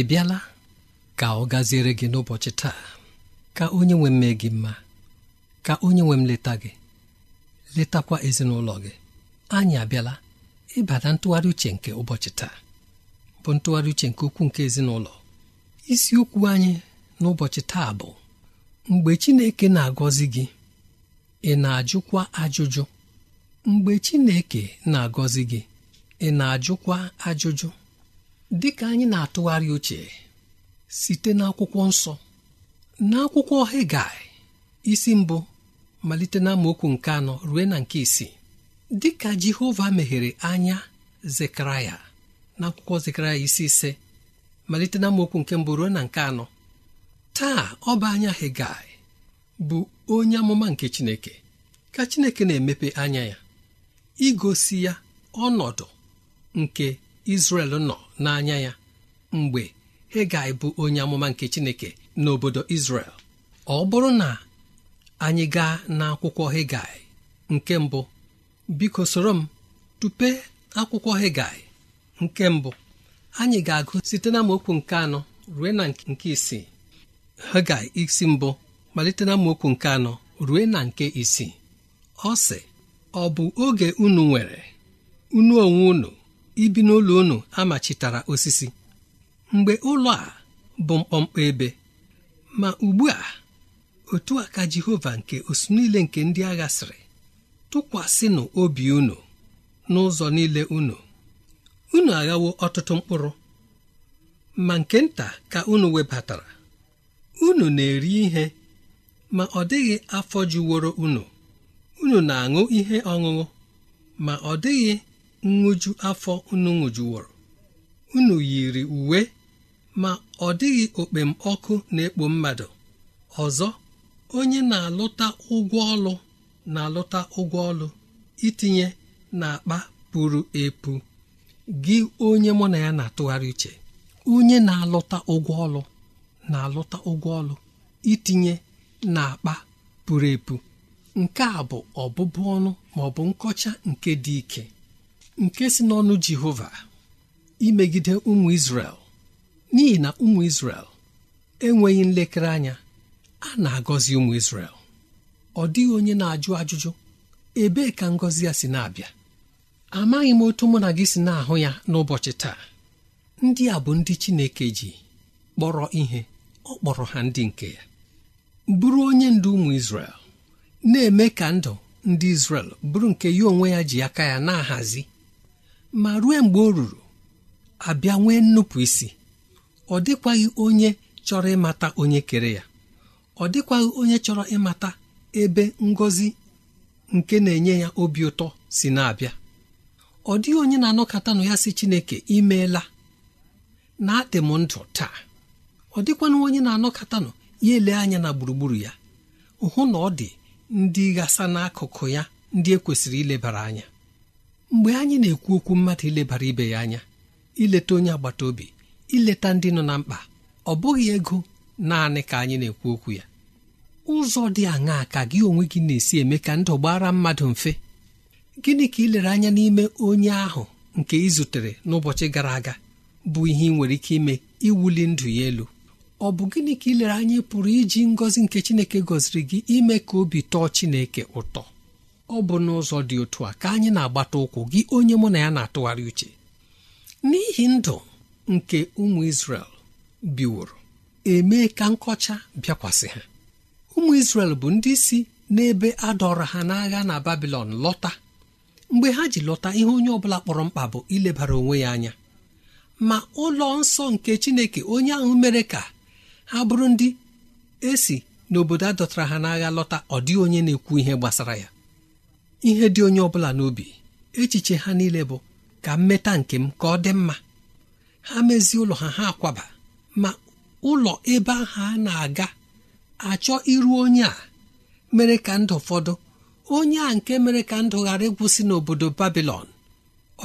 ị bịala ka ọ gaziere gị n'ụbọchị taa ka onye nwe gị mma ka onye nwe m leta gị letakwa ezinụlọ gị anyị abịala ịbata ntụgharị uche nke ụbọchị taa bụ ntụgharị uche nke ukwuu nke ezinụlọ isiokwu anyị n'ụbọchị taa bụ mgbe Chineke na-agọzi gị ị na-ajụkwa ajụjụ mgbe Chineke na-agọzi gị ị na-ajụkwa ajụjụ dịka anyị na-atụgharị uche site n'akwụkwọ nsọ n'akwụkwọ Hegai isi mbụ malite na nke anọ ruo na nke isii dịka Jehova meghere anya Zekaraya akwụkwọ Zekaraya isi ise malite na nke mbụ ruo na nke anọ taa ọba anya Hegai bụ onye amụma nke Chineke ka Chineke na-emepe anya ya igosi ya ọnọdụ nke Izrel nọ n'anya ya mgbe Hegai bụ onye amụma nke Chineke n'obodo Izrel ọ bụrụ na anyị gaa n'akwụkwọ Hegai nke mbụ biko soro m tupe akwụkwọ Hegai nke mbụ anyị ga-agụ site na okwu nke anọ rue na nke isii Hegai isi mbụ malite na okwu nke anọ rue na nke isii ọ sị ọ bụ oge unu nwere unu onwe unu ibi n'ụlọ unu amachitara osisi mgbe ụlọ a bụ mkpọmkpọ ebe ma ugbu a otu a ka Jehova nke osu niile nke ndị agha sịrị tụkwasịnụ obi unu n'ụzọ niile unu unu aghawo ọtụtụ mkpụrụ ma nke nta ka unu webatara unu na-eri ihe ma ọ dịghị afọ juworo unu unu na-aṅụ ihe ọṅụṅụ ma ọ dịghị nṅụju afọ unu nwụjuworo unu yiri uwe ma ọ dịghị okpem ọkụ na-ekpo mmadụ ọzọ onye na-alụta ụgwọ ọlụ na-alụta ụgwọ ọlụ itinye n'akpa pụrụ epu gị onye mụ na ya na-atụgharị uche onye na-alụta ụgwọ ọlụ na-alụta ụgwọ ọlụ itinye n'akpa pụrụ epu nke a bụ ọbụbụ ọnụ ma nkọcha nke dị ike nke si n'ọnụ jehova imegide ụmụ isrel n'ihi na ụmụ isrel enweghị nlekere anya a na-agọzi ụmụ isrel ọ dịghị onye na-ajụ ajụjụ ebee ka ngọzi ya si na-abịa amaghị m otu mụ na gị si na-ahụ ya n'ụbọchị taa ndị a bụ ndị Chineke ji kpọrọ ihe ọ kpọrọ ha ndị nke ya bụrụ onye ndu ụmụ Izrel na-eme ka ndụ ndị Izrel bụrụ nke ya onwe ya ji aka ya na-ahazi ma rue mgbe o ruru abịa nwee nnupụ isi ọ dịkwaghị onye chọrọ ịmata onye kere ya ọ dịkwaghị onye chọrọ ịmata ebe ngọzi nke na-enye ya obi ụtọ si na-abịa ọ dịghị onye na anọkata nụ ya si Chineke imeela na adị m ndụ taa ọ dịkwanụ onye na anọkatanụ ya ele anya na gburugburu ya hụ na ọ dị ndị ghasa n'akụkụ ya ndị ekwesịrị ilebara anya mgbe anyị na-ekwu okwu mmadụ ilebara ibe ya anya ileta onye agbata obi ileta ndị nọ na mkpa ọ bụghị ego naanị ka anyị na-ekwu okwu ya ụzọ dị aṅaa ka gị onwe gị na-esi eme ka ndụ gbara mmadụ mfe gịnị ka ilere anya n'ime onye ahụ nke ị zutere n'ụbọchị gara aga bụ ihe ị nwere ike ime iwuli ndụ ya elu ọ bụ gịnị ka ilere anya pụrụ iji ngọzi nke Chineke gọziri gị ime ka obi tọọ Chineke ụtọ ọ bụ n'ụzọ dị otu a ka anyị na-agbata ụkwụ gị onye mụ na ya na-atụgharị uche n'ihi ndụ nke ụmụ Izrel biworo emee ka nkọcha bịakwasị ha ụmụ Izrel bụ ndị si n'ebe a dọrọ ha n'agha na Babilọn lọta mgbe ha ji lọta ihe onye ọbụla kpọrọ mkpa bụ ilebara onwe ya anya ma ụlọ nsọ nke Chineke onye ahụ mere ka ha bụrụ ndị esi n'obodo a dọtara ha n'agha lọta ọ dịghị onye na-ekwu ihe gbasara ya ihe dị onye ọbụla n'obi echiche ha niile bụ ka mmeta nke m ka ọ dị mma ha mezie ụlọ ha ha akwaba ma ụlọ ebe ahụ a na-aga achọ iru onye a mere ka ndụ fọdụ onye a nke mere ka ndụ ghara ịgwụsị n'obodo babilon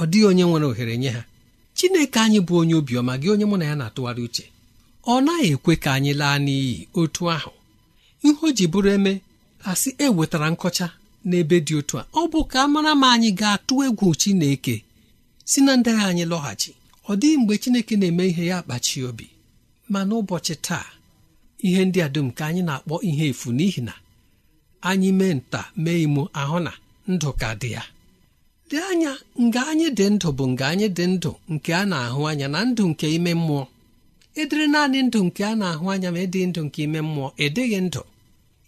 ọ dịghị onye nwere ohere nye ha chineke anyị bụ onye obiọma gị onye mụ na ya na-atụgharị uche ọ naghị ekwe ka anyị laa n'iyi otu ahụ ihe o ji bụrụ eme asị e wetara nkọcha n'ebe dị otu a ọ bụ ka mara ma anyị ga-atụ egwu Chineke si na ndị anyị lọghachi ọ dịghị mgbe Chineke na-eme ihe ya kpachi obi ma n'ụbọchị taa ihe ndị a dum ka anyị na-akpọ ihe efu n'ihi na anyị mee nta mee imo ahụ na ndụ ka dị ya dị anya nga anyị dị ndụ bụ nga anyị dị ndụ nke a na-ahụ anya na ndụ nke ime mmụọ edere naanị ndụ nke a na-ahụ anya ma ịdị e ndụ nke ime mmụọ edeghị ndụ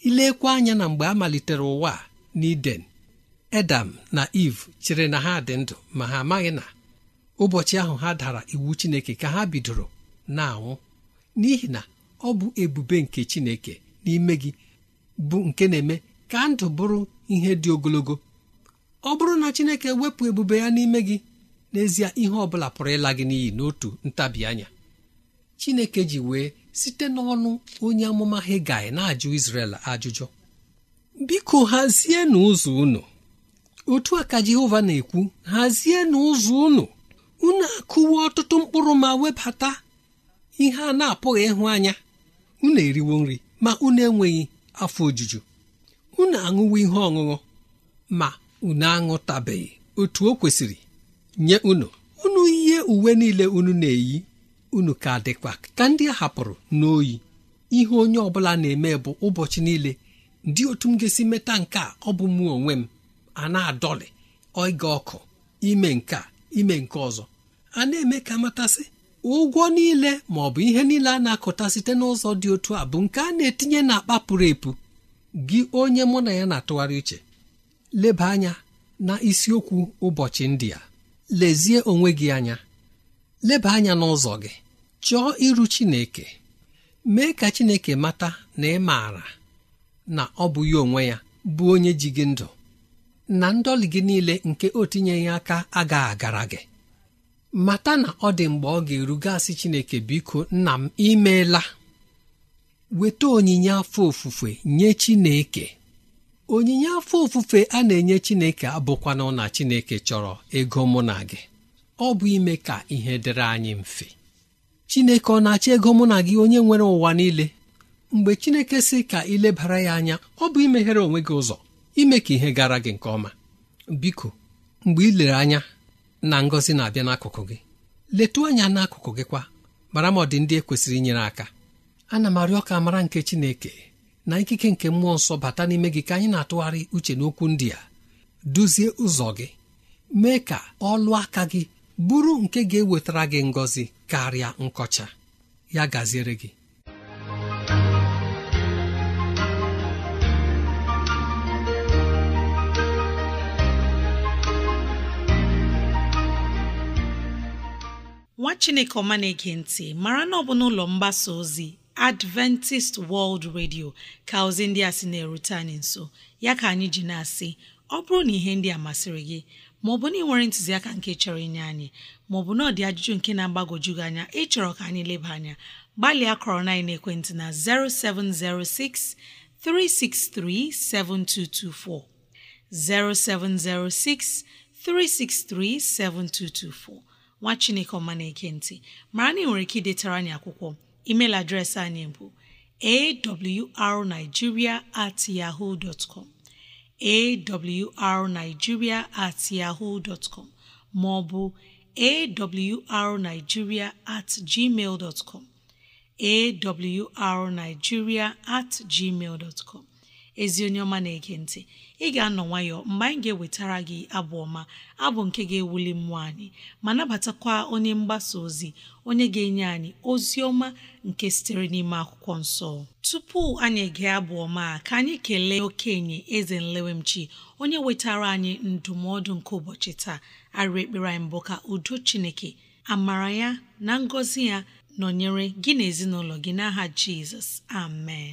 ilekwa anya na mgbe a malitere ụwa n'iden edam na iv chere na ha dị ndụ ma ha amaghị na ụbọchị ahụ ha dara iwu chineke ka ha bidoro na-anwụ n'ihi na ọ bụ ebube nke chineke n'ime gị bụ nke na-eme ka ndụ bụrụ ihe dị ogologo ọ bụrụ na chineke wepụ ebube ya n'ime gị n'ezie ihe ọ bụla pụrụ ịla gị n'iyi n'otu ntabi chineke ji wee site n'ọnụ onye amụma hegai na-ajụ Izrel ajụjụ biko hazie n'ụzọ unu otu a ka jehova na-ekwu hazie n'ụzọ unu unu akụwa ọtụtụ mkpụrụ ma webata ihe a na-apụghị ịhụ anya unu eriwo nri ma unu enweghị afọ ojuju unu aṅụwo ihe ọṅụṅụ ma unu aṅụtabeghị otu o kwesịrị nye unu unu ihe uwe niile unu na-eyi unu ka dịkwa ka ndị a hapụrụ n'oyi ihe onye ọbụla na-eme bụ ụbọchị niile dị otu m ga-esi meta nke a ọ bụ mụ onwe m a na-adọlị oge ọkụ ime nke a ime nke ọzọ a na-eme ka matasị ụgwọ niile ma ọ bụ ihe niile a na-akụta site n'ụzọ dị otu a bụ nke a na-etinye akpa pụrụ epu gị onye mụ na ya na-atụgharị uche leba anya na isiokwu ụbọchị ndị a lezie onwe gị anya leba anya n'ụzọ gị chọọ iru Chineke mee ka Chineke mata na ị maara na ọ bụ ya onwe ya bụ onye ji gị ndụ na ndọli gị niile nke o tinyeghị aka agaghị agara gị mata na ọ dị mgbe ọ ga-erugasị Chineke biko nna m imeela weta onyinye afọ ofufe nye Chineke onyinye afọ ofufe a na-enye Chineke abụkwana na Chineke chọrọ ego mụ na gị ọ bụ ime ka ihe dịrị anyị mfe Chineke ọ na-achọ ego mụ na gị onye nwere ụwa niile mgbe chineke sị ka ị lebara ya anya ọ bụ imeghere onwe gị ụzọ ime ka ihe gara gị nke ọma biko mgbe ị lere anya na ngọzi na-abịa n'akụkụ gị letu anya n'akụkụ gị kwa mara ma ọ dị ndị ekwesịrị inyere aka ana m arịọ ka mara nke chineke na ikike nke mmụọ nsọ bata n'ime gị ka anyị na-atụgharị uche n'okwu ndị a duzie ụzọ gị mee ka ọlụ aka gị bụrụ nke ga-ewetara gị ngọzi karịa nkọcha ya gaziere gị chineke ọma na-ege ntị mara na ọ bụ n'ụlọ mgbasa ozi adventist world radio ka ozi ndị a sị na-erute anyị nso ya ka anyị ji na-asị ọ bụrụ na ihe ndị a masịrị gị maọbụ na ị nwere ntụziaka nke chọrọ inye anyị maọbụ na ọ dị ajụjụ nke na-agbagwoju gị anya ịchọrọ ka anyị leba anya gbalịa kọrọ na ekwentị na 0706 363 7224 0706 363 7224 nwa chineke ọma na mara na ị nwere ike idetara anyị akwụkwọ email adreesị anyị bụ arigiria at yahoo at yahoo dtcom maọbụ ma ọ bụ awrnigeria at gmail at gmail ezi onye ọma na-ege ntị ị ga-anọ nwayọọ mgbe anyị ga-ewetara gị abụ ọma abụ nke ga-ewuli mmụọ anyị ma nabatakwa onye mgbasa ozi onye ga-enye anyị ozi ọma nke sitere n'ime akwụkwọ nsọ tupu anyị ege abụ ọma ka anyị kelee okenye eze nlewemchi onye wetara anyị ndụmọdụ nke ụbọchị taa arị ekpere anyị mbụ ka udo chineke amara ya na ngọzi ya nọnyere gị na ezinụlọ gị n'aha jizọs amen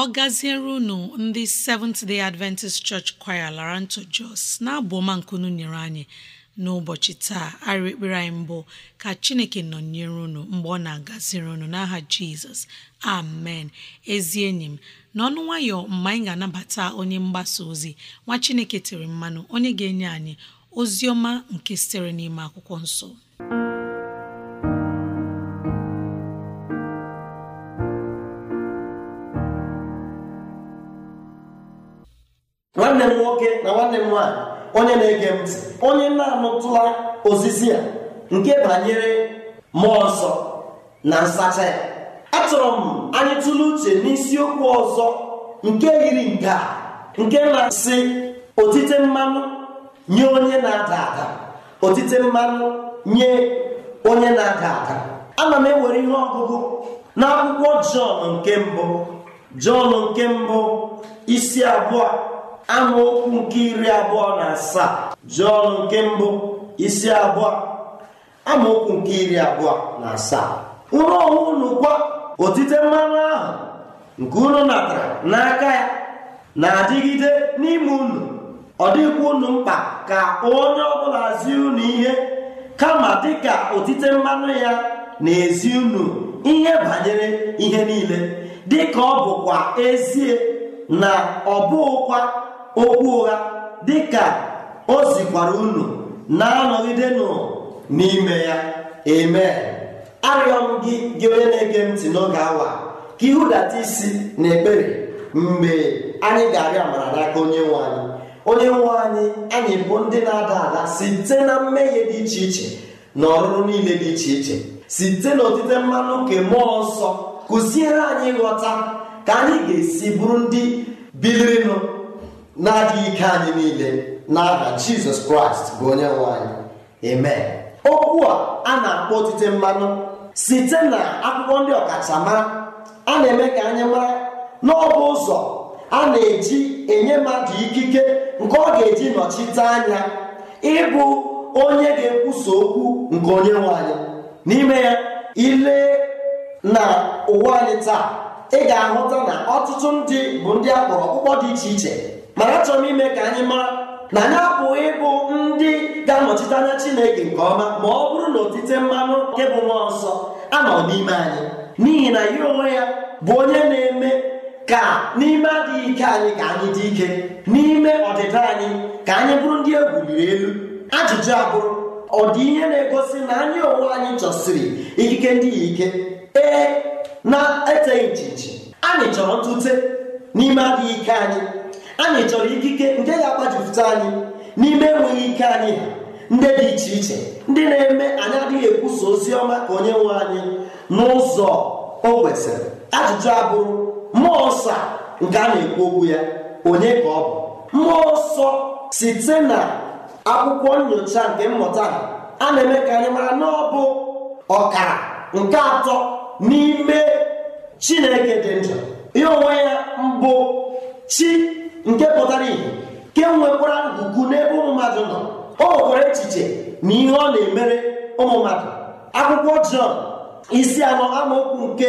ọ gaziere unu ndị Seventh Day Adventist Church Choir ntụ Jos na-abụ ọma nkunu nyere anyị n'ụbọchị taa arịrị ekpere anyị mbụ ka Chineke nọnyere unu mgbe ọ na-agaziri unu n'aha Jizọs amen ezi enyi m n'ọnụ nwayọ mgbe anyị ga-anabata onye mgbasa ozi nwa Chineke tere mmanụ onye ga-enye anyị ozi ọma nke sitere n'ime akwụkwọ nsọ nwanne m nwoke na nwanne m nwaanyị onye na-ege ntị onye na-anụtụla osisi a nke banyere mmụọ nsọ na nsacha ya achọrọ m anyị tụle uche n'isiokwu ọzọ nke yiri nke a nke na-asị otite mmanụ nye onye na-ada ada otite mmanụ nye onye na-ada ada ana m ewere ihe ọgụgụ n'akwụkwọ jọn nke mbụ jọn nke mbụ isi abụọ amaokwu nke iri abụọ na asaa jụọ nke mbụ isi abụọ amaokwu nke iri abụọ na asaa unu onwe unu kwa otite mmanụ ahụ nke unu natara n'aka ya na-adịgide n'ime unu ọ dịkwa unu mkpa ka onye ọbụla zi unu ihe kama dịka otite mmanụ ya na-ezi unu ihe banyere ihe niile dịka ọ bụkwa ezie na ọ bụghịkwa okwu ụgha dị ka o zikwara unu na-anọgidenụ n'ime ya eme arịọ m gị gị onye na-ege ntị n'oge awa ka ịhụdata isi na ekpere mgbe anyị ga-arịọ amara n'aka onye nwe anyị onye nwe anyị anyị bụ ndị na-ada ada site na mmehie dị iche iche na ọrụrụ niile dị iche iche site n'otite mmanụ nke mmụọ nsọ kụziere anyị ịghọta ka anyị ga-esi bụrụ ndị bilirinụ na-adị ike anyị niile n'aha jizọs kraịst bụ onye anyị amen okwu a a na-akpọ otite mmanụ site na akwụkwọ ndị ọkachamara a na-eme ka anyị mara n'ọbụ ụzọ a na-eji enye mmadụ ikike nke ọ ga-eji nọchite anya ịbụ onye ga-ekwusa okwu nke onye nwe anyị n'ime ya ile na ụwa anyị taa ị ga-ahụta na ọtụtụ ndị bụ ndị a kpọrọ ọkpụkpọ dị iche iche mana achọrọ m ime ka anyị mara na anyị apụghị ịbụ ndị ga-anọchite anya Chineke nke ọma ma ọ bụrụ na otite mmanụ nke bụ mmụọ nsọ anọ n'ime anyị n'ihi na ya onwe ya bụ onye na-eme ka n'ime adịghị ike anyị ka anyị dị ike n'ime ọdịda anyị ka anyị bụrụ ndị egwuriri elu ajụjụ abụrụ ọ dị ihe na-egosi na anyị onwe anyị chọsiri ikike ndị ike ee na-eteghị nchichi anyị chọrọ ntute n'ime adịghị ike anyị anyị chọrọ ikike nke ga-agbajipụta anyị n'ime enweghị ike anyị ha ndị dị iche iche ndị na-eme anyị adịghị ekwusa ozi ọma ka onye nwe anyị n'ụzọ o kwesịrị ajụjụ abụrụ mmụọ nsọ nke a na-ekwu okwu ya onye ka ọ bụ mmụọ nsọ site na akwụkwọ nyocha nke mmụta a na-eme ka anyị mara na ọ bụ ọkara nke atọ n'ime chineke dị njọ ya onwe ya mbụ chi nke pụtara ihe ke nwekwara ugwu n'ebe ụmụ mmadụ nọ o nwere echiche na ihe ọ na-emere ụmụ mmadụ akwụkwọ Jọn isi anọ amaokwu nke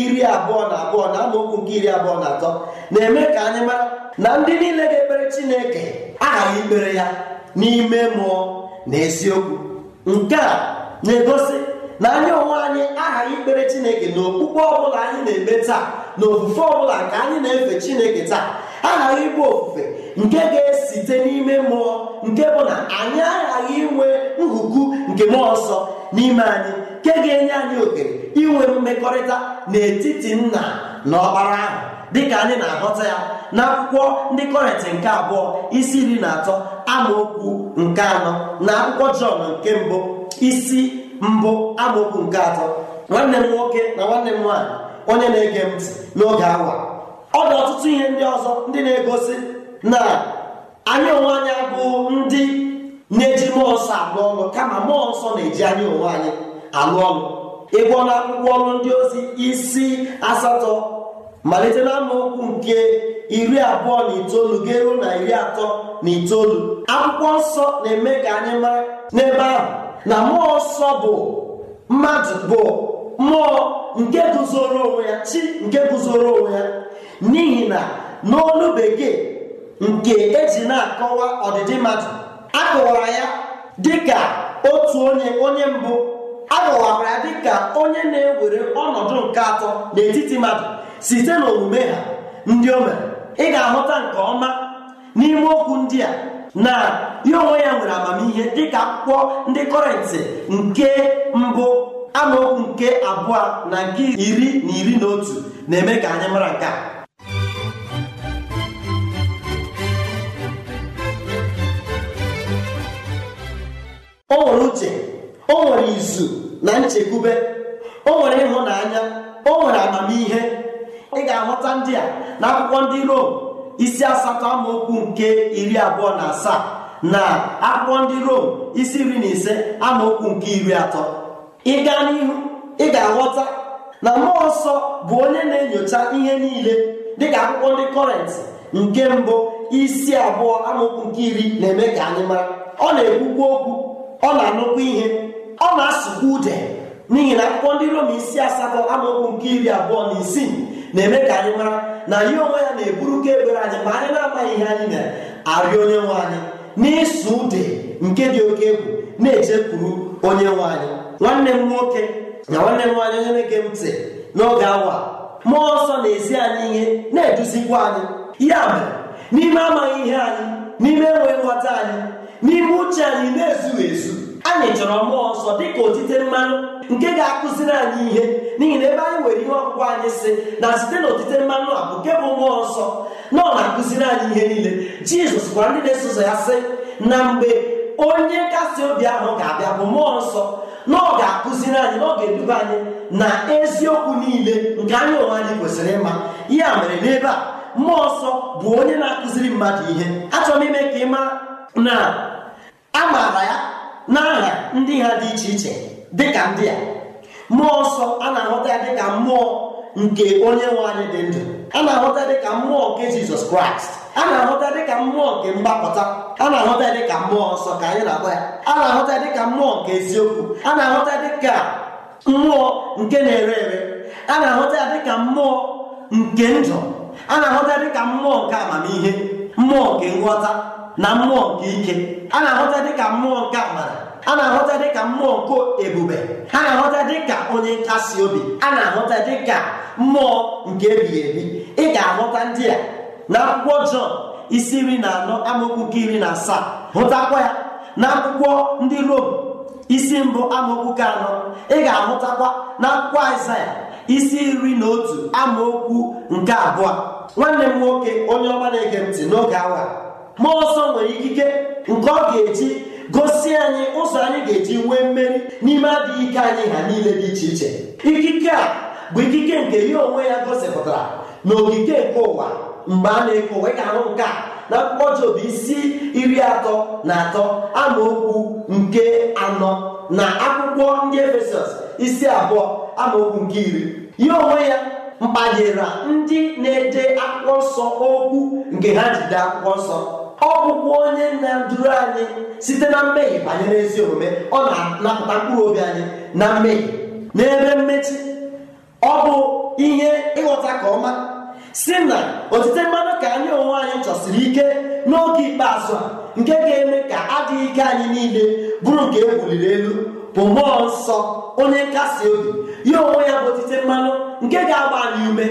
iri abụọ na abụọ na amaokwu nke iri abụọ na atọ na-eme ka anyị mara na ndị niile ga-ekpere Chineke aghaghị ikpere ya n'ime mmụọ na eziokwu nke a na-egosi na anyị onwe anyị aghaghị ikpere Chineke na okpukpe ọbụla anyị na-eme taa na ofufe ọbụla nke anyị na-efe Chineke taa aghaghị ịbụ ofufe nke ga-esite n'ime mmụọ nke bụ na anyị aghaghị inwe nhuku nke mmụọ nsọ n'ime anyị nke ga-enye anyị ohere inwe mmekọrịta n'etiti nna na ọkpara ahụ dịka anyị na aghọta ya n'akwụkwọ ndị kọrịtị nke abụọ isi iri na atọ amaokwu nke anọ na akwụkwọ jọn nke mbụ isi mbụ amaokwu nke atọ nwanne m nwoke na nwanne m nwaanyị onye na-ege ntị n'oge awa ọ dị ọtụtụ ihe ndị ọzọ ndị na-egosi na anyị onwe anyị bụ ndị na-eji mmụọ nsọ alụ ọnụ kama mmụọ nsọ na-eji anyị onwe anyị alụ ọnụ. ịgwọ na akwụkwọ ọnụ ndị ozi isi asatọ malite na amaokwu nke iri abụọ na itoolu ga-eru na iri atọ na itoolu akwụkwọ nsọ na-eme ka anyị mara n'ebe ahụ na mmụọ nsọ bụ mmadụ bụ mmụọ nke guzoro onwe ya chi nke guzoro onwe ya n'ihi na n'olu bekee nke eji na-akọwa ọdịdị mmadụ akọwara ya dịka otu onye onye mbụ akọwara ya dịka onye na-ewere ọnọdụ nke atọ n'etiti mmadụ site n'omume ha ndị o mere ị ga-ahụta nke ọma n'ime okwu ndị a na ya onwe ya nwere amamihe dịka akwụkwọ ndị kọrentị nke mbụ amaokwu nke abụọ na nke iri na iri na otu na-eme ka anyị mara nke a o nwere uche o nwere izu na nchekwube o nwere ịhụnanya o nwere amamihe ị ga-ahụta ndị a na akwụkwọ ndị Rom isi asatọ amaokwu nke iri abụọ na asaa na akwụkwọ ndị Rom isi iri na ise amaokwu nke iri atọ ị gaa n'ihu ị ga-aghọta na mmụọ nsọ bụ onye na-enyocha ihe niile dịka akwụkwọ ndị kọrent nke mbụ isi abụọ amaokwu nke iri na-eme ka anyị mara ọ na-ekwukwu okwu ọ na-anụkwa ihe ọ na-asụkwa ude n'ihi na akwụkwọ ndị Rom isi asatọ amaokwu nke iri abụọ na isii na-eme ka anyị mara na ya onwe ya na-eburu ka egbere anyị ma anyị na-amaghị ihe anyị na-arịọ onye nwe anyị n'ịsụ ude nke dị oke egwu na echekwuru onye nwe anyị nwanne m nwoke na nwanne m nwanyị onye na-ege m ntị n'oge awa mmụọ ọsọ na-ezi anyị ihe na-eduzikwa anyị ya mere n'ime amaghị ihe anyị n'ime enweghị nghọta anyị n'ime uche anyị na-ezughị ezu anyị chọrọ mmụọ nsọ ka otite mmanụ nke ga-akụziri anyị ihe n'ihi na ebe anyị nwere ihe ọkụkụ anyị si na site na otite mmanụ a bụ nke bụ mmụọ nsọ na ọ na-akụziri anyị ihe niile jizọs gwara ndị na-eso ụzọ ya sị na mgbe onye nkasi obi ahụ ga-abịa bụ mmụọ nsọ na ọ ga-akụziri anyị na ọ ga-eduba anyị na eziokwu niile nke anyị onwe anyị kwesịrị ịma ya mere n'ebe a mmụọ nsọ bụ onye na-akụziri mmadụ ihe achọrọ m ime ka ị na a maara ya n'aha ndị ha dị iche iche dị ka ndị a mmụọ ọsọ a na-ahụta ya dịka mmụọ nke onye nwe anyị dị ndụ a na-ahụta dịka mmụọ nke jizọs kraịst a na-ahụta dịka mmụọ nke mgbapụta a na-ahụta dịka mmụọ nsọ ka anyị na-akpọ ya a na-ahụta dịka mmụọ nke eziokwu a na-ahụta dịka mmụọ nke na-ere ere a na-ahụta ya dịka mmụọ nke ndụ a na-ahụta dịka mmụọ nke amamihe mmụọ nke nghọta na mmụọ nke ike a na-ahụta dịka mmụọ nke amara a na-ahụta dịka mmụọ nke ebube a na-ahụta dịka onye nkasi obi a na-ahụta dịka mmụọ nke ebighị ebi ị ga-ahụta ndị a na akwụkwọ Jọn isi iri na anọ amaokwu nke iri na asaa hụtakwa ya na akwụkwọ ndị Rom isi mbụ amaokwu nke anọ ị ga-ahụtakwa na akwụkwọ Aịzaya isi iri na otu amaokwu nke abụọ nwanne m nwoke onye ọma na-ege ntị n'oge awa mmụọ ọsọ nwere ikike nke ọ ga-eji gosi anyị ụzọ anyị ga-eji nwee mmeri n'ime adịghị ike anyị ha niile dị iche iche ikike a bụ ikike nke ya onwe ya gosipụtara na ogige nke ụwa mgbe a na-eke ụwa ahụ nke a na akwụkwọ Job isi iri atọ na atọ okwu nke anọ na akwụkwọ ndị Efesọs isi abụọ okwu nke iri ya onwe ya mkpanyere ndị na-ede akwụkwọ nsọ okwu nke ha jide akwụkwọ nsọ ọ bụkwa onye na-eduru anyị site na mmehie banyere ezi omume ọ na-anapụta mkpụrụ obi anyị na mmehie n'ebe mmechi ọ bụ ihe ịghọta ka ọma si na otite mmadụ ka anyị onwe anyị chọsiri ike n'oge ikpeazụ a nke ga-eme ka adịghị ike anyị niile bụrụ nke e buliri elu bụ mmụọ nsọ onye nkasi obi ya onwe ya bụ otite mmanụ nke ga-agba anyị ume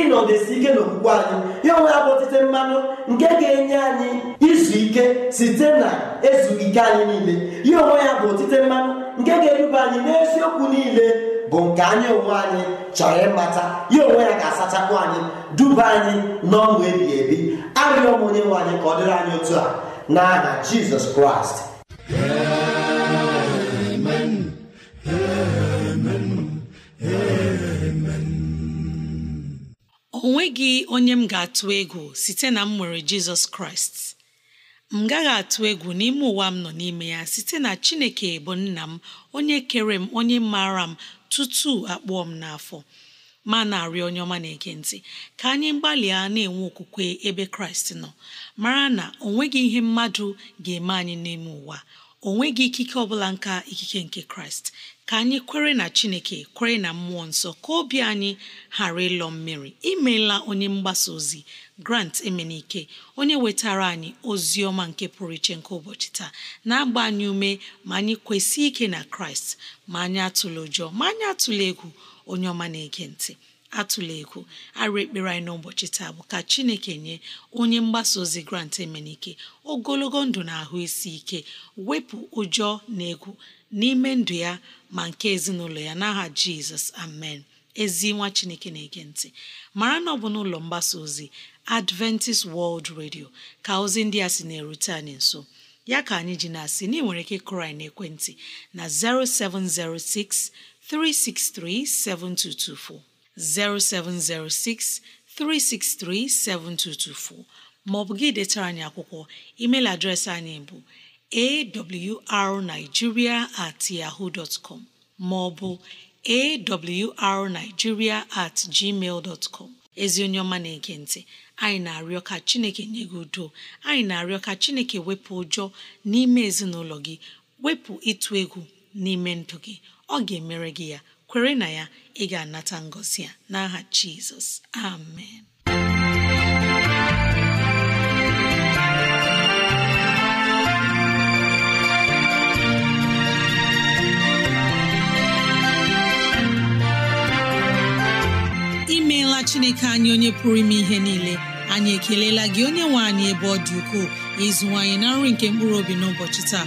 ịnọdesi ike n'okwukwe anyị ya onwe ya bụ otite mmanụ nke ga-enye anyị izu ike site na ezughị ike anyị niile ya onwe ya bụ otite mmanụ nke ga eruba anyị n'eziokwu niile bụ nke anyị onwe anyị chọrọ ịmata ya onwe ya ga-asachapụ anyị duba anyị n'ọṅụ ebighị ebi arịọ m onye nwe anyị ka ọ dịrị anyị otu a n'aha Jizọs Kraịst onweghị nweghị onye m ga-atụ egwu site na m nwere Jizọs Kraịst m gaghị atụ egwu n'ime ụwa m nọ n'ime ya site na Chineke bụ nna m onye kere m onye maara m tutu akpụọ m n'afọ ma na arị onye ọma na-ege ka anyị gbalịa na-enwe okwukwe ebe Kraịst nọ mara na ọ nweghị ihe mmadụ ga-eme anyị n'ime ụwa Ọ nweghị ikike ọbụla nka ikike nke Kraịst ka anyị kwere na chineke kwere na mmụọ nsọ ka obi anyị ghara ịlọ mmiri imeela onye mgbasa ozi grant emenike onye wetara anyị ozi ọma nke pụrụ iche nke ụbọchị taa na-agba anyị ume ma anyị kwesị ike na kraịst ma anyị atụla ụjọ ma anyị atụla egwu onye ọma na-ege ntị atụla ekwu arụ ekpere anyị n'ụbọchị taa bụ ka chineke nye onye mgbasa ozi grant emenike ogologo ndụ na ahụ isi ike wepụ ụjọ na egwu n'ime ndụ ya ma nke ezinụlọ ya n'aha jizọs amen ezi nwa chineke na-ege ntị mara na ọ bụ n'ụlọ mgbasa ozi adventist world radio ka ozi ndị a sị na-erute anyị nso ya ka anyị ji na-asị na ị nwere ike kụrụ anyị n'ekwentị na 0706 363 7224 07063637224 maọbụ gị detara anyị akwụkwọ email adreesị anyị bụ arigiria at yahoo dot com maọbụ awrnigeria at gmail dot com ezi onye ọma na-ege ntị anyị na-arịọ ka chineke nye gị udo anyị na-arịọ ka chineke wepụ ụjọ n'ime ezinụlọ gị wepụ ịtụ egwu n'ime ndụ gị ọ ga-emere gị ya kwere na ya ị ga-anata ngosi a n'aha jizọs amen imeela chineke anyị onye pụrụ ime ihe niile anyị ekelela gị onye nwe anyị ebe ọ dị ukwuu ịzụwanyị na nri nke mkpụrụ obi n'ụbọchị taa